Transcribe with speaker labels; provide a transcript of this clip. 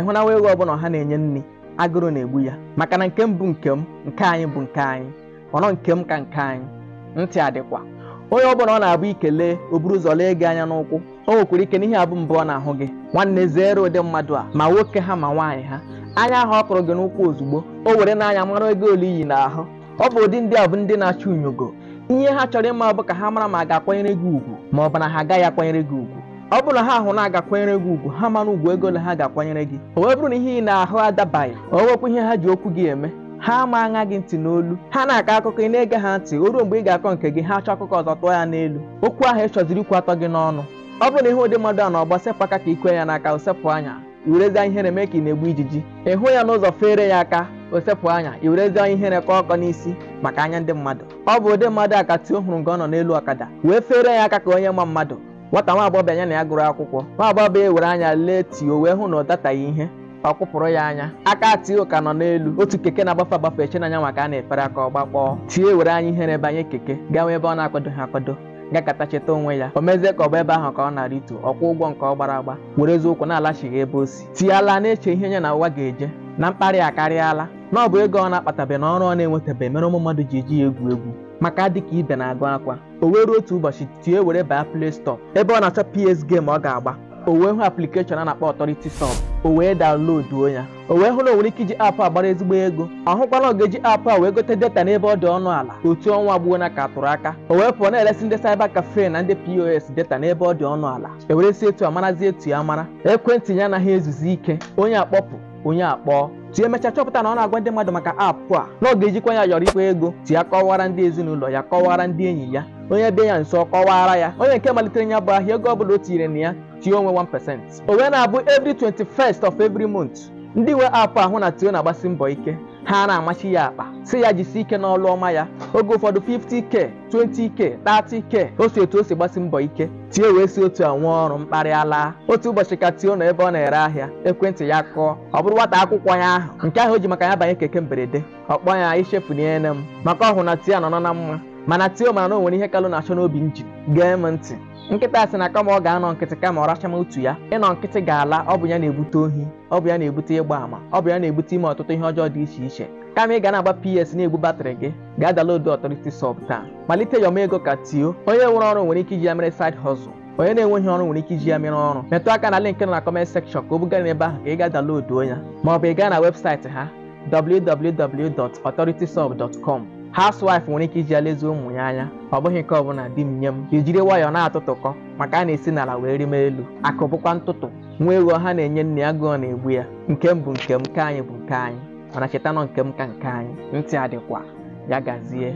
Speaker 1: ịhụnawa ego ọbụla ha na-enye nne agụrụ na-egbu ya maka na nke m bụ nke m nke anyị bụ nke anyị ọnọ nke m ka nke anyị ntị adịkwa onye ọbụla ọ na-abụ ikele o buru ụzọ lee gị anya n'ụkwụ o nwekwara ike n'ihe abụ mbụ ọ na-ahụ gị nwanne zere ụdị mmadụ a ma nwoke ha ma nwaanyị ha anya ahụ ọ kụrụ gị n'ụkwụ ozugbo o were n'anya mara ego ole iyi ahụ ọ bụ ụdị ndị a bụ ndị na-achọ unyogo ihe ha chọrọ ịma bụ ka ha mara ma a ga-akwanyere gị ugwu ma ọ bụ na ha agaghị akwanyere gị ugwu ọ bụrụ na ha ahụ na-agakwanyere gị ugwu ha mana ugwu ego na ha ga-akwanyere gị o wee bụrụ na ihe ị na-ahụ adabaghị o wepụ ihe ha ji okwu gị eme ha ama aṅa gị ntị n'olu ha na-akọ akụkọ ị na-ege ha ntị o ruo mgbe ị ga-akọ nke gị ha chọọ akụkọ ọzọ tụọ ya n'elu okwu ahụ ị chọziri ikwu atọ gị n'ọnụ ọ bụrụ na ihe ụdị mmadụ a na ọgba sepụ aka ka ikwe ya n'aka osepụ anya iwerezi ihere mee ka ị na-egbu ijiji ịhụ ya n'ụzọ fere ya aka osepụ anya iwerezi ihere ka ọkọ n'isi maka anya ndị mmadụ ọ bụ ụdị mmadụ a ka tio hụrụ nga ọ nọ n'elu ọkada wee fere ya aka ka onye ma mmadụ nwata nwa agbọghọ anya na ya gụrụ akwụkwọ nwa e ewere anya lee tio wee hụ na ọ dataghị ihe ọ kwụpụrụ ya anya aka tio ka nọ n'elu otu keke na-agbafe agbafe eche n'anya maka a na-efere aka ọ gbakpọọ tie were anya ihere banye keke nwee ebe ọ na-akwadoghị akwado gakata cheta onwe ya o mezie ka ọ bụ ebe ahụ ka ọ na-arịtu ọkwa ụgwọ nke ọ gbara agba were eziokwu na-alachighị ebe o si tie ala na-eche ihe nye na ụwa ga-eje na mkparị akarịala na ọ bụ ego ọ na-akpatabe na ọrụ ọ na-enwetabe mere ụmụ mmadụ ji eji ya egwu egwu maka dịka ibe na-agụ akwa o wee otu ụbọchị tie were baa play store ebe ọ na-achọ ps game ọ ga-agba o wee hụ aplikeshọn a na-akpọ ọtọriti sọb o wee daunloduo ya o wee hụrụ onwere ike iji aapụ agbara ezigbo ego ọ hụkwala oge eji apụ a wee gote data n'ebe ọ dị ọnụ ala otu ọnwa gbuo na ka atụrụ aka o wee pụọ na-eresi ndị cyber cafe na ndị pos data n'ebe ọ dị ọnụ ala e si etu amarazi etu ya mara ekwentị ya anaghị ezuzi ike onye akpọpụ onye akpọ tie emechaa chọpụta na ọ na-agwa ndị mmadụ maka apụ a na ọ ga-ejikwa ya yọrọ ikwa ego tie kọwara ndị ezinụlọ ya kọwara ndị enyi ya onye bịa ya nso kọwara ya onye nke malitere ya bụ ahịa ego ọ bụla o tinyere na ya tie onwe 1% o onwe na-abụ every 21st of every month ndị nwe apụ ahụ na tio na-agbasi mbọ ike ha na-amachi ya akpa si ya jisie ike n'ọlụ ọma ya oge ụfọdụ 50k 20k 30k otu etu o si gbasi mbọ ike tie wee si otu a nwee ọrụ mkparịala. otu ụbọchị ka tie n'ebe ebe ọ na-ere ahịa ekwentị ya kụọ ọ bụrụ nwata akwụkwọ ya ahụ nke ahụ o ji maka ya banye keke mberede ọ ya ichefunyere m maka ọhụrụ na tia nọ nọ na mma mana tio mana na o nwere ihe kalụ na-achọ n'obi m ji gee m ntị nkịta sị na kama ọ ga-anọ nkịtị kama ọ racha m otu ya ịnọ nkịtị ga-ala ọ bụ ya na-ebute ohi ọ bụ ya na-ebute ịgba àmà ọ bụ ya na-ebute ime ọtụtụ ihe ọjọọ dị iche iche kama ị ga na-agba ps na-egbu batrị gị gaa download Authority sọp taa malite yọma ego ka tio onye nwere ọrụ nwere ike iji ya mere said hustle onye na-enweghị ọrụ nwere ike iji ya mere ọrụ metụ aka na link nọ na ka o bugara ebe ahụ ka ị ya ma ị gaa na webụsaịtị ha www.authoritysub.com housewife nwere ike iji ya lezie ụmụ ya anya ọ bụghị nke ọbụla di m nye m ijiri ọ na-atụtụkọ maka a na-esi n'ala wee rime elu akụbụkwa bụkwa ntụtụ nwa ewu ọha na-enye nne ya gụọ na-egbu ya nke m bụ nke m nke anyị bụ nke anyị mana chetanụ nke m ka nke anyị ntị adịkwa ya gazie